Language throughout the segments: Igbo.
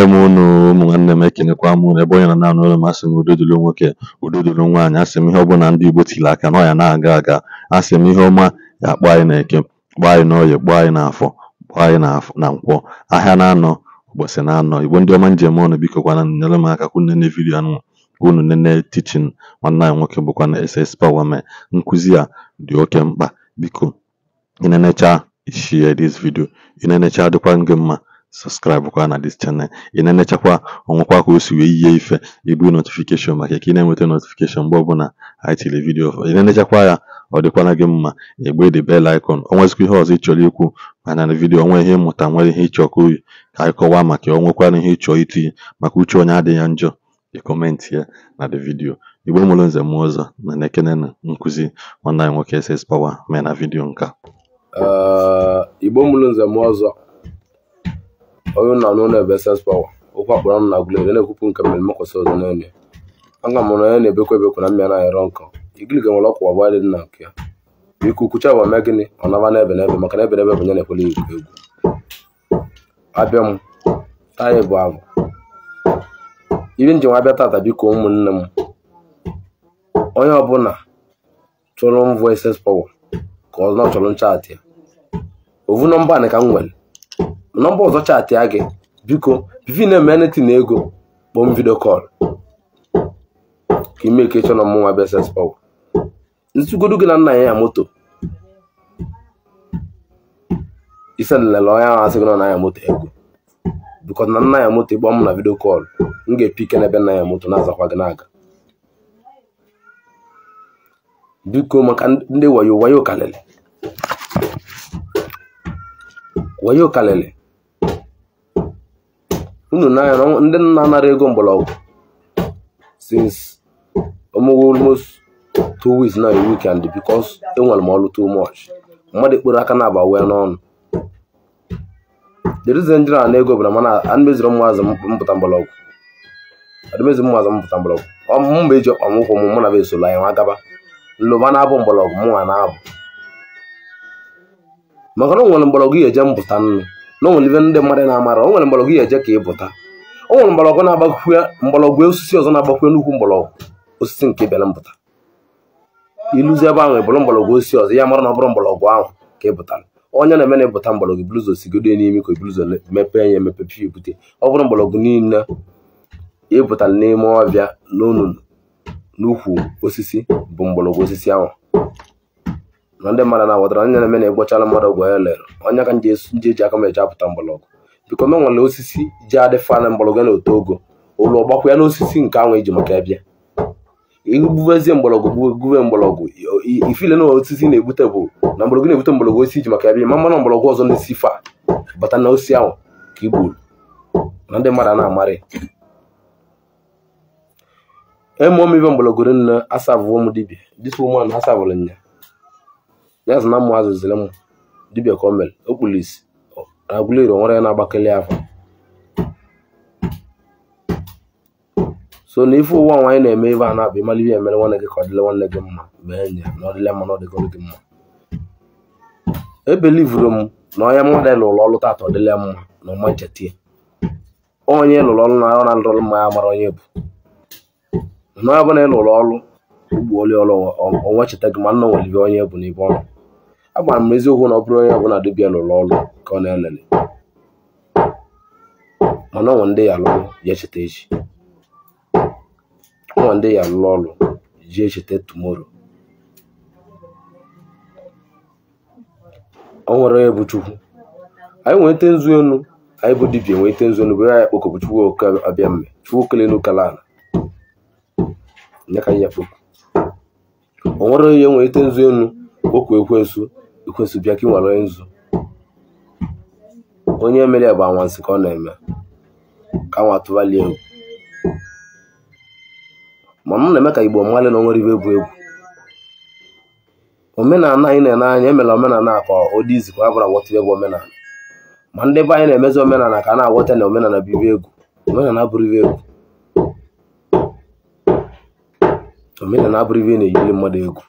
eme m unu ụmụnwanne m ekenekwa m unu ebe onye nọ naanị ụlọ masị m udo nwoke udodolo nwaanyị asị m ihe ọbụla ndị Igbo tiri aka na ọya na-aga aga asị m ihe ọma ya akpọ anyị na eke kpọọ anyị n'ọyị kpọọ anyị n'afọ kpọọ anyị na nkwọ ahịa na-anọ ụbọchị na-anọ Igbo ndị ọma njem ọnụ biko kwana nyere m aka kwunene vidio anụ unu nene tichin nwanne anyị nwoke bụkwa na SS Power mee nkụzi a dị oke mkpa biko ịnenecha ishie this video ịnenecha dịkwa gị mma subscribe kwa na this channel inene chakwa enechakwa ọnwụkwa ka o ife ibu notification maka ka mwete notification mgbe na anyị video inene chakwa na-enechakwa ya ọ dịkwara gị mma the bell icon onwezikwa ihe hiyo ị chọrọ ikwu mana na video onwe ihe mmụta nwere ihe ịchọ ka anyị kọwaa maka ya onwekwara ihe ịchọ itinye maka uche onye ya njọ ị kọmentị ya na the vidio igbo mụrụ nze m na na-ekene na nkụzi nwanne anyị nwoke ss power mee na vidio nka uh, igbo mụrụ nze m Onye unu anụla bụ Essence Power, okwu akpọrọ ọnụ na Aguleri na-ekwupụ nke mmemme nkwụsị ụzọ n'Enugu. A ga m onye na ebekw ebekwa na mmịa na-ayọrọ nkọ, igirigi nwere ọkwa abụọ dị na nke ya. Biko kwuchie agwa mee gịnị ọ naba ebe n'ebe maka na ebe n'ebe bụ nye na-ekwele egwu egwu. Abịa m, taa bụ abụ. Ibi njem abịa tata biko ụmụnne m. Onye ọbụla chọrọ mvọ Essence Power ka ọ chọrọ nchaatị ya. Ovu nọmba anị ka m nwere nọmba ọzọ chaatị a gị biko bivin emeniti na ego kpọọ m vidio kọl ka ime ka ịchọ na mụnwa beses pọw ntugodo gị na nna ya ya moto ise nlele onye ahụ asị gị na ya moto egwu bikọ na nna ya moto ịgba m na vidio kọl m ga-epike n'ebe nna ya moto na-azakwa gị n'aga biko maka ndị wayo wayo kalịlị wayo kalịlị unu n'anya na ndị nna anara ego mgbọrọgwụ since almost two weeks now a weekend because enwere m ọrụ too much mmadụ ekpere aka na-aba wee n'ọnụ the reason ndị na ego bụ na mana adịmeziri mmaazị mpụta mgbọrọgwụ adịmezi mmaazị mpụta mgbọrọgwụ mba eji ọkpa m ụkwụ m mụ na esoro anyị nwa gaba nlụba na-abụ mgbọrọgwụ mụnwa na-abụ maka na o nwere mgbọrọgwụ ihe eje mpụta nnu na o ndị mmadụ na-amara o nwere mgbọrọgwụ ya eje ka ị pụta o nwere mgbọrọgwụ na-agbakwue mgbọrọgwụ osisi ọzọ na-agbakwue nnukwu mgbọrọgwụ osisi nke bịara mpụta iluzi ebe ahụ bụrụ mgbọrọgwụ osisi ọzọ ya mara na ọ bụrụ mgbọrọgwụ ahụ ka ị pụtara onye na-eme na ịpụta mgbọrọgwụ bluzo sigodo n'ime ka bluzo mepee ya emepepi ebute ọ bụrụ mgbọrọgwụ niile ịpụta n'ime ọbịa n'onunu n'ukwu osisi bụ mgbọrọgwụ osisi ahụ na ndị mmadụ na-aghọtara nye na na-egwochala mmadụ ọgwụ ya lere onye ka nji eji aka m eji apụta mgbọrọgwụ biko me nwere osisi ji adị fana ya na otu ogo ụlọ ọgbakwụ ya na osisi nke ahụ iji maka bịa igbubezie mgbọrọgwụ gbuwe mgbọrọgwụ ifile na osisi na-egbute bụ na mgbọrọgwụ na-egbute mgbọrọgwụ osisi iji maka bịa mmanụ ọzọ na fa bata na osisi ahụ ka gburu na ndị mmadụ na-amarị eme omebe mgbọrọgwụ dibia nya ya sị na mma azụziri m dibịa kọmel, o mere o kpuru nwere na-agbakeli afọ so na ife ụwa nwaanyị na-eme ibe a na-abụ ịmali ihe emere nwanne gị ka ọ dịle nwanne gị mma mgbe enyi ya na ọdịle mma na ọdịgọrọ gị mma ebelivuru m na onye mmadụ lụrụ ọlụ taata ọdịle mma na ọma ya. onye lụrụ ọlụ na arụ na ndọrọ mma ya mara onye bụ na onye ọbụla ị ọlụ ugbo oli ọlụ onwe cheta gị ma nna nwere onye bụ n'ibe ọnụ agwara m eziokwu na ọ bụrụ onye ọbụla dibịa lụrụ ọrụ ka ọ na-elele mana ọnwa ndị ya alụrụ ya echeta echi ọnwa ndị ya alụrụ ọrụ ji echeta tumoro ọ nwere onye bụ chukwu anyị nwete nzu enu anyị bụ dibịa nwete nzu enu bụ ya kpokọbụ chukwu abịa mme chukwu kelenu kalala ya ka ya kpokọ o nwere onye nwete nzu enu okwu ekwensu ikwesu bịa ka ị nwere onye nzu onye mere bụ anwansị ka ọ na-eme ka nwa tụbalie egwu ma m na-eme ka igbo mmadụ na onwere ibe bụ egwu omenala anyị na-ene anya emela omenala ka ọ dị izi ka ọ bụla wọta egwu omenala ma ndị be anyị na-emezi omenala ka a na-awọta na omenala bibi egwu omenala abụrụ ibe egwu omenala abụrụ ibe na-eyiri mmadụ egwu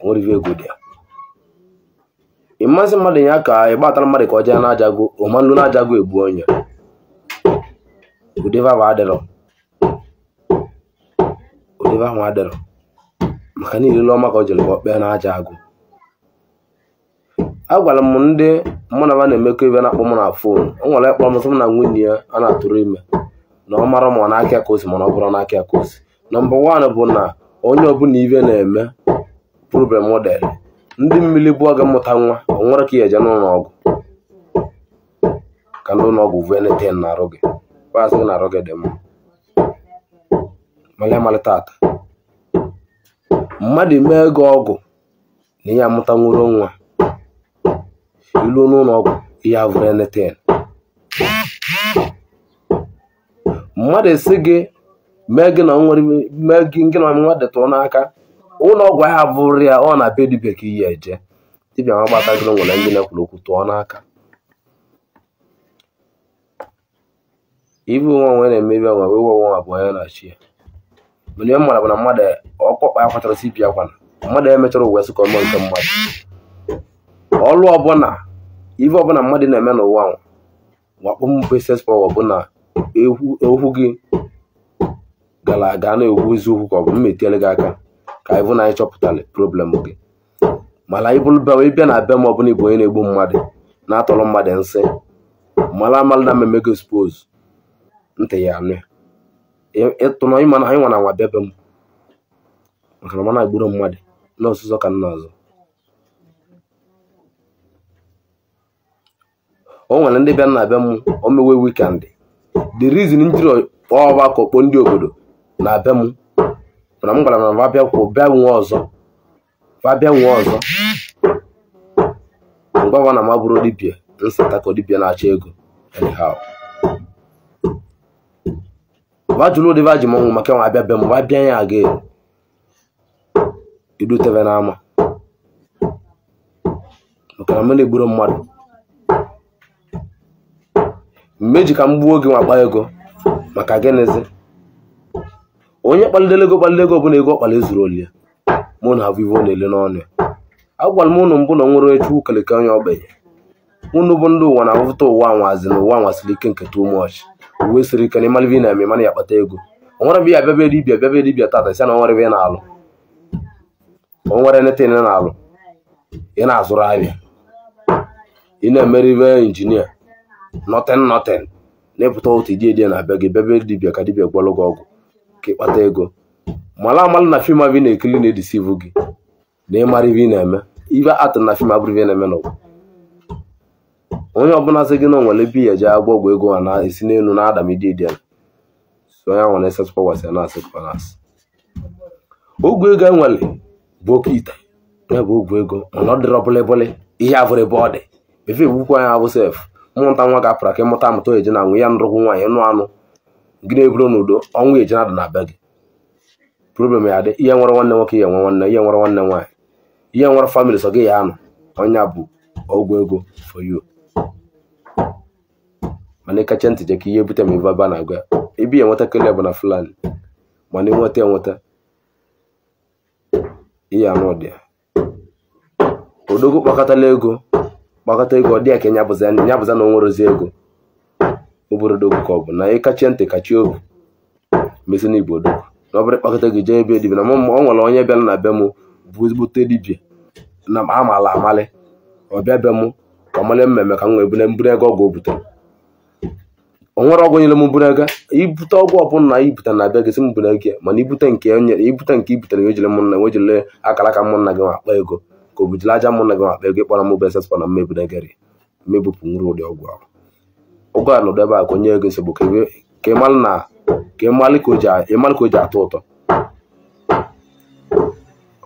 onwere ibe egwu dị ya ịmasị mmadụ ya ka ịgbatara mmadụ ka ọ jee na-ajago ụmanụ na-ajago egbu onye udevava adịrọ adịrọ maka niile ọma ka ọ jere ka ọ kpee na-aja agụ a m ndị mụ na na-emekọ ebe na-akpọ m na fon ọ nwere kpọrọ m m na nwunye ya a na-atụrụ ime na ọ mara ma na ka akosi mana ọ bụrụ n'aka ka osi nọmba wan bụ na onye ọbụla ibe na-eme problem dere ndị mmiri bụọ gị mmụta nwa ọ nwere ka i eje n'ụlọ ọgwụ ka ndị ụlọ ọgwụ veneten na-arụ gị paasị na-arụ gị dị mma mala amalị tata mmadụ mee gị ọgwụ na ihe amụta nwụrụ nwa iluo n'ụlọ ọgwụ ihe veneten mmadụ esi gị mee gị na nwa detụrụ n'aka ụlọ ọgwụ ahịa bụrụ ya ọ na be dibịa ka iyi eje dibịa ma gbatagoro nwere ndị na-ekwuru okwu tụọ n'aka ibe onwe onwe na-emebi ọnwa wee we onwe abụọ ya na chi ya mana ihe mara bụ na mmadụ ọkpọkpa ya kwatara si bịa kwana mmadụ ya mechara ụwa sịkọ mmụọ nke mmadụ ọlụ ọbụla ife ọbụla mmadụ na-eme n'ụwa wakpọmpesespawa bụ na okwu gị gara aga na-ekwu eziokwu ka ọ bụ mmetiere gị aka ka anyị na anyị chọpụtara problem gị mara ịbịa na abịa be m ọbụla ịbụ onye na-egbu mmadụ na-atọrọ mmadụ nsị mara amalụ na mmemme gị spos ntị ya anụ ịtụnụ ịma na anyị nwa na nwa bebe m maka na na agburu mmadụ na ọsụsọ ka nna ọzọ o nwere ndị bịa na be m omewe wikendị the reason njiri ọgbakọ kpọọ ndị obodo na be m mana m gwara na va bịakwu bịa nwe ọzọ va bịa nwe ọzọ mgbawa na mabụrụ dibia nsata ka dibia na-achọ ego anyhow va jụrụ ụdị va ji m ọnwụ maka nwa abịa be m va ya aga idutebe n'ama maka na m na-egburu mmadụ mgbe eji ka m gbuo oge nwakpa ego maka gịnịzi onye kpalidere ego kpalide ego ọbụla ego ọkpala ezuru oli ya mụ na avivo na-ele n'ọnụ ya agwara m ụnụ mbụ na nwere echu ukeleke onye ogbenye ụnụ bụ ndị ụwa na-ahụta ụwa anwazi na ụwa nwasiri ike nke too much uwe siri ike na ịmara na-eme mana ya akpata ego onwere m ya bịaba dibia bịaba dibia tata si na onwere ebe ị na-alụ onwere neta ị na-alụ ị na-azụrụ ahịa ị na-emeribe injinia nọtin nọtin na-epụta otu iji edie na be gị bịaba dibia ka dibia gwalụ gị ọgwụ ka ịkpata ego mara amala na fim abụ na-ekiri na-edisivu gị na ịmara ibe ị na-eme ibe atụrụ na fim abụrụ ibe na-eme n'ụwa onye ọbụla sị gị na nwere bi ya eje agba ọgwụ ego ha na-esi n'elu na adam ididi ya so onye nwere esetụpa wasị na asị kwanasị ogwu ego enwere bụ oke ite ya bụ ogwu ego mana ọ dịrọ bụlịbụlị ihe abụrụ ebe ọ dị efe egbukwa ya abụ sef mmụta nwa ga-apụra ka ịmụta amụta oyeje na nwe ya nrụkwụ nwaanyị nụ anụ gị na-eburu n'udo ọnwụ eje na adụ na be gị problem ya dị ihe nwere nwanne nwoke ihe nwe nwanne ihe nwere nwanne nwaanyị ihe nwere famịlị so gị ya anụ onye bụ ọgwụ ego for you mana ịkacha ntị je ka ihe bute ma ebe na agwa ebe ya nweta kele bụ na fulani mana ịnweta enweta ihe anụ ọdị ya odogwu kpakọtala ego kpakọta ego ọ dị ya ka ya bụza na o nwerozi ego obere dogo ka ọ bụ na ịkachie ntị kachie ohu mesi na igbo odogwu na ọ bụrụ ịkpakọta gị jee ebe dibia na ọ nwere onye bịara na be m bụ ezigbote dibia na amaala amalị ọbịa be m ka ọ mara mmemme ka m wee bụrụ mbụrụ ego ọgwụ o butere o nwere ọgwụ nyere m mbụrụ ego ibute ọgwụ ọbụla na ibute na abịa gị si m mbụrụ ego mana ibute nke nyere ibute nke ibitere wejire m nna wejire akara aka mụ na gị ma akpa ego ka o bujere aja m nna gị akpa ego ịkpọrọ m bụ esespa na mmebụregari mmebupụ nwere ụdị ọgwụ ahụ ụgọ anọdụ ebe a ka onye ego nsogbu ka ịmalụ ka o ji atọ ụtọ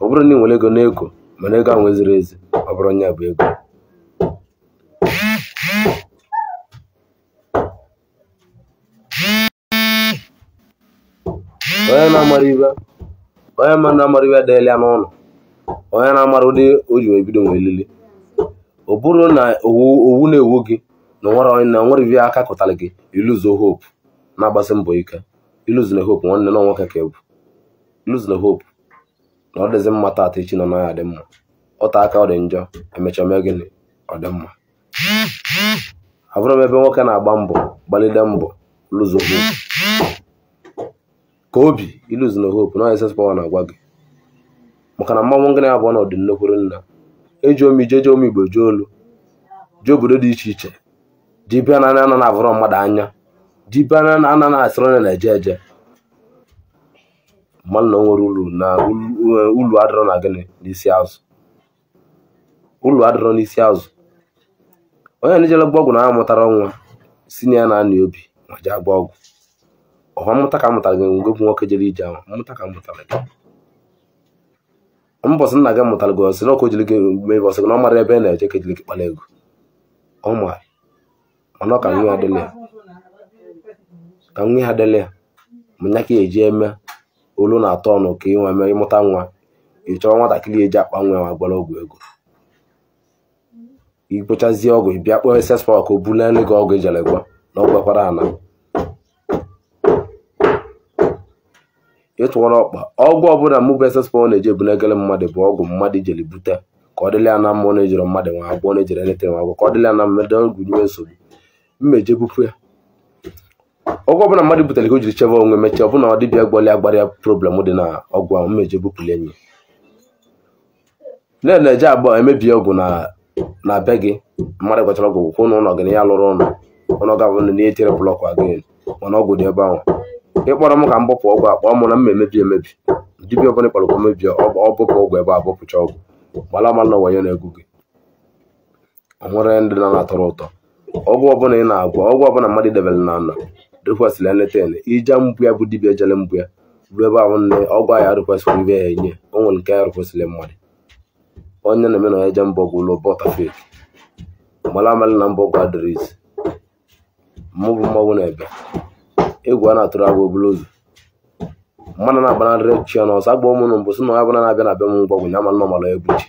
ọ bụrụ na ị nwere ego n'ego mana ego ahụ ziri ezi ọ bụrụ onye bụ ego onye na-amara ibe onye mmadụ na-amara ibe adịghị ya n'ụlọ onye na-amara ụdị o ji ebido nwee lili ọ bụrụ na owu na-ewu gị na onwere ivi aka kụtara gị iluzo hope na-agbasi mbọ ike iluzina hope nwanne na nwoke ka ebu iluzina hope na ọ dịzi mma taata echi nọ n'ahịa dị mma ọta aka ọ dị njọ emechaa mee gịnị ọ dị mma abụrụ m ebe nwoke na-agba mbọ gbalide mbọ luzo hope ka obi iluzina hope na ss na-agwa gị maka na mmanwụ ngịnị abụọ na ọdị nnekwuru nna eji ije jeje omi igbo jee olu jee obodo dị iche iche dibịa na anaghị avụrụ mmadụ anya dibịa na anaghị asịrị onye na-eje eje mmadụ na o nwere uru na eh, ulu adịrọ na gịnị n'isi azụ ulu adịrọ n'isi azụ onye na-ejere gba na amụtara ọnwa si na ya na-anị obi ma jee gba ọgwụ ọha mmụta ka mụtara gị ngwe bụ nwoke jere ije ahụ mmụta ka mụtara gị mbọsị nna gị mụtara gị ọsị na ọkụ jiri gị mee ọsị gị na ọ mara ebe na-eje ka ejiri gị kpara ego ọ mara mana ka nwe ha dịla ya manya ka eji eme olu na-atọ ọnụ ka inwe mee ịmụta nwa ị chọrọ nwatakịrị eji akpa nwa ma gbara ọgwụ ego ikpochazie ọgwụ ị bịa kpọọ ss pak obulelu gị ọgwụ ejere gwa na ọ gwekwara ana ịtụwara ọkpa ọgwụ ọbụla mụ bụ ss pak na-eji ebulegele mmadụ bụ ọgwụ mmadụ ijeli bute ka ọ dịla ya na ọ na-ejere mmadụ nwa agbọọ na-ejere eletere nwa agbọọ ka ọ dịla ya na ọgwụ nyiwe nsogbu mmeje bupụ ya ọgwụ ọbụla mmadụ butere ka o jiri chebe onwe mechaa ọbụna ọ dịbịa gbọlị agbara ya problem dị na ọgwụ ahụ mmeje bupụli enyi nne na-eje abụọ emebie ọgwụ na be gị mmadụ gwachara ọgwụ kwụ na ụlọ gị na ya lụrụ ụlọ ụlọ ga-abụ na ya etere blọk agịn mana ọgwụ dị ebe ahụ ịkpọrọ m ka m bụpụ ọgwụ akpọ mụ na mma emebi emebi dibịa ọbụla ịkpọrọ ka mebie ọ bụpụ ọgwụ ebe a bụpụcha ọgwụ gbala mma na wayo na-egwu gị ọ nwere ndị na-atọrọ ụtọ ọgwụ ọbụla ị na-agwọ ọgwụ ọbụla mmadụ debere na ala rekwesịrị eleten ija mgbu ya bụ dibia jere mgbu ya ruo ebe ahụ nne ọgwụ ahụ rekwesịrị ibe ya enye onwe nke ya rekwesịrị mmadụ onye na-eme na eje mbọ gwụ ụlọ bọta feki mara amalị na mbọ gwa adịrị mmụbụ mmanwụ na-ebe egwu a na-atụrụ agwa oburu ụzọ mmadụ na-agbanarịrị chi ya n'ọsọ agba ụmụnụ mbụ sị na onye ọbụla na-abịa na be m mgbọgwụ ya ma nọ mara egwu chi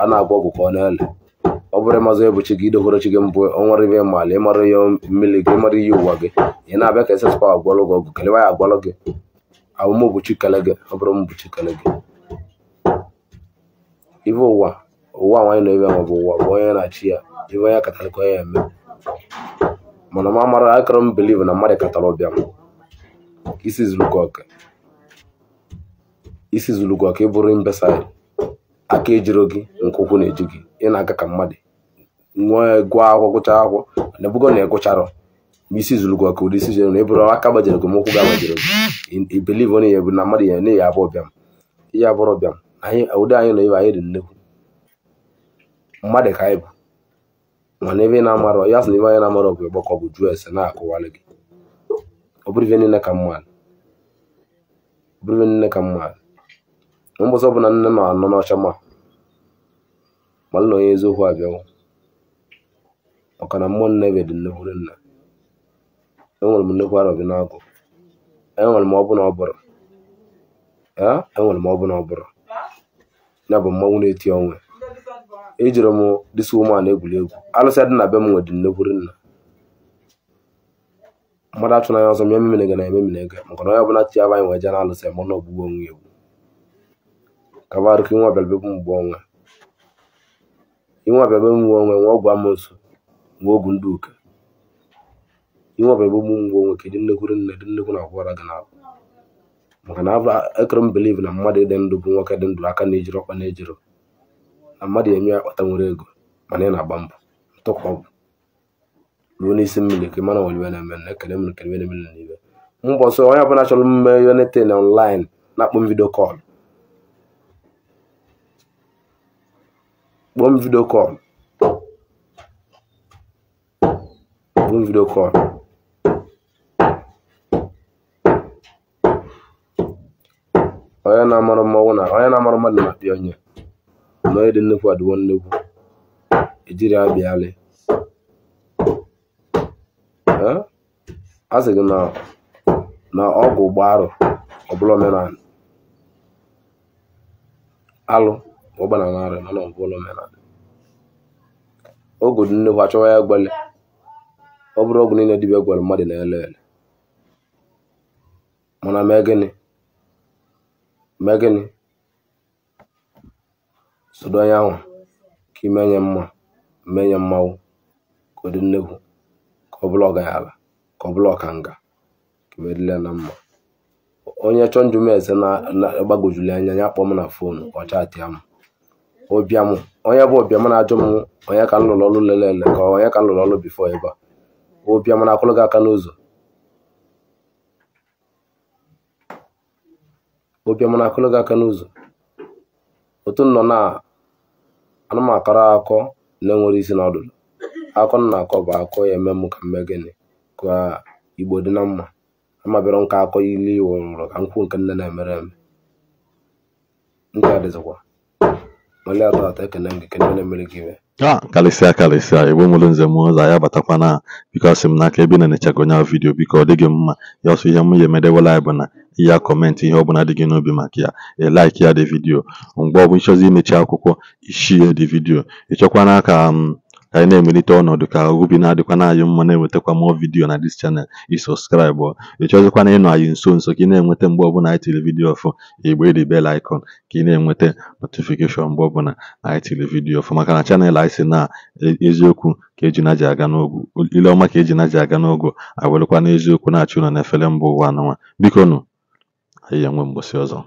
a na-agwọ ọgwụ ka ọ na-ele ọ bụrụ ịmazụ ebuchi gị idokworochi gị mbụ ọnwa rive mala ịmara ihe mmiri gị ịmara ihe ụwa gị ị na-abịa ka esespa agwalụ gị ọgụ kelewa ya agwalụ gị abụm obuchi kele gị ọ bụrụ mbuchi kele gị ibe ụwa ụwa nwaanyị na ebe ma bụ ụwa bụ onye na-achị ya ibe onye katara ka onye eme mana ma mara akọrọ m biliv na mmadụ katara ọbịa m isi zuru gị ọka isi zuru ịbụrụ mbesa aka ejiro gị nke ukwu na eji gị ị na-aga ka mmadụ nwa gụọ akwụkwọ gụcha akwụkwọ na ebugo na ịgụcharụ mgbe isi zuru gị ụdị isi jere na ịbụrụ aka gbajere gị ụkwụ gị gị biliv na ya bụ na mmadụ ya na ya abụọ bịam ihe abụrụ bịam ụdị anyị na ibe anyị dị nnekwu mmadụ ka anyị bụ mana ebe na-amarọ ya sị na anyị na-amarọ bụ ịgbakọ bụ na-akụwalị gị ọ bụrụ bụ niile ka ọ bụrụ niile ka nne nọ anọ n'ọcha ma malụ na onye eziokwu maka na mmụọ Nnebe dị nnukwu nna enwere m nnukwu arọbi n'agụ enwere m ọbụna ọbụrụ enwere m ọbụrụ ya bụ mmanwụ na-eti onwe ejiri m disi ụmụana egwuri egwu alụsị dị na be m nwe dị nnukwu nna mmadụ na ya ọzọ m ememere gị na ememere gị maka na onye ọbụla aba anyị wee jee na alụsị mụ na ogbugbu onwe egwu ka barụ inwe mgbe onwe inwe mgbe nwe ọgwụ Nwaogwu Nduka inwe ọbara bụ ụmụ ngwọ nwoke dị e nnekwuru nne dị nnekwu na akwara gị na maka na ekere m biliv na mmadụ dị ndụ bụ nwoke dị ndụ aka na-ejiri ọkpa na-ejiro na mmadụ eme ya akpata nwere ego mana ị na-agba mbọ ntụkwa ọgwụ ruo n'isi mmiri ka mana oliwe na-eme na ekele m ekele na emere n'ibe mbọ ọsọ onye ọbụla chọrọ mme yonete na ọnlaịn na-akpọ m vidio kọl kpọọ m vidio kọl bụ vidiyo kọl onye na-amarụ mmanwụ na onye na-amarụ amara dị na-apịa onye na onye dị nnukwu adịwo nnukwu ejiri abịa alị a e sị gị na ọgwụ ụgbọ arụ ọbụla bụla omenala alụ ụgbọ na narị nọ n'ọbụla omenala oge dị nnukwu achọwa ya gbele ọ bụrụ ọgwụ niile dibịa gwara mmadụ na-ele ele mana mee gịnị mee gịnị sodo onye ahụ ka ime nye mma mee nye mmanwụ ka ọ dị nnekwu ka ọ bụla ọgaranya ka ọ bụla nga ka edila na mma onye chọọ njụ m eze na-agbagojuli anya ya kpọọ m na fon ọ chatịa m onye bụ ọbịa na-ajụ m onye ka m lụrụ ọrụ ele ka onye ka m lụrụ ọrụ bifo ebe a ụbịam na gị aka n'ụzọ na-akụlụ gị aka n'ụzọ otu nọ na anụmakara akọ na-enwere isi na akọ na akọ bụ akọ ya eme m ka mme gịnị ka igbo dị na mma amabịara nka akọ ilu iwu nwụrụ ka nkwụ nke nne na-emere eme ndị a dịzikwa mali atọ atọ ekene m gị kene na-emere gị iwe ah karịsịa karịsịa igbo mụrụ nze m ụzọ ya batakwana biko asị m n'aka ebe na-enechago nya vidiyo biko ọ dịghị mma ya ọsọ ihe mụ ya emedewela na ya kọmentị ihe ọbụla dị gị n'obi maka ya e, like ya dị vidiyo mgbe ọ bụ ịchọzi imechi akwụkwọ ya dị vidiyo ịchọkwana ka m mm, ka anyị na-emelite ọnọdụ ka obi na-adịkwa anyị mma na-ewetakwa mụọ vidiyo na dis chanel ị sọskraịbụ ị na ịnọ anyị nso nso ka ị na-enweta mgbe ọbụla anyị tiri vidiyo ọfụ igbe ịrị bel ikon ka ị na-enweta notifikeshọn mgbe ọbụla anyị tiri vidiyo ọfụ maka na chanel anyị si na eziokwu ka eji na ji aga n'ogwu ile ọma ka eji na ji aga n'ogo awelụkwa n'eziokwu na-achụ ụlọ na efere mbụ ụwa anụnwa biko nụ anyị enwe mgbụsị ọzọ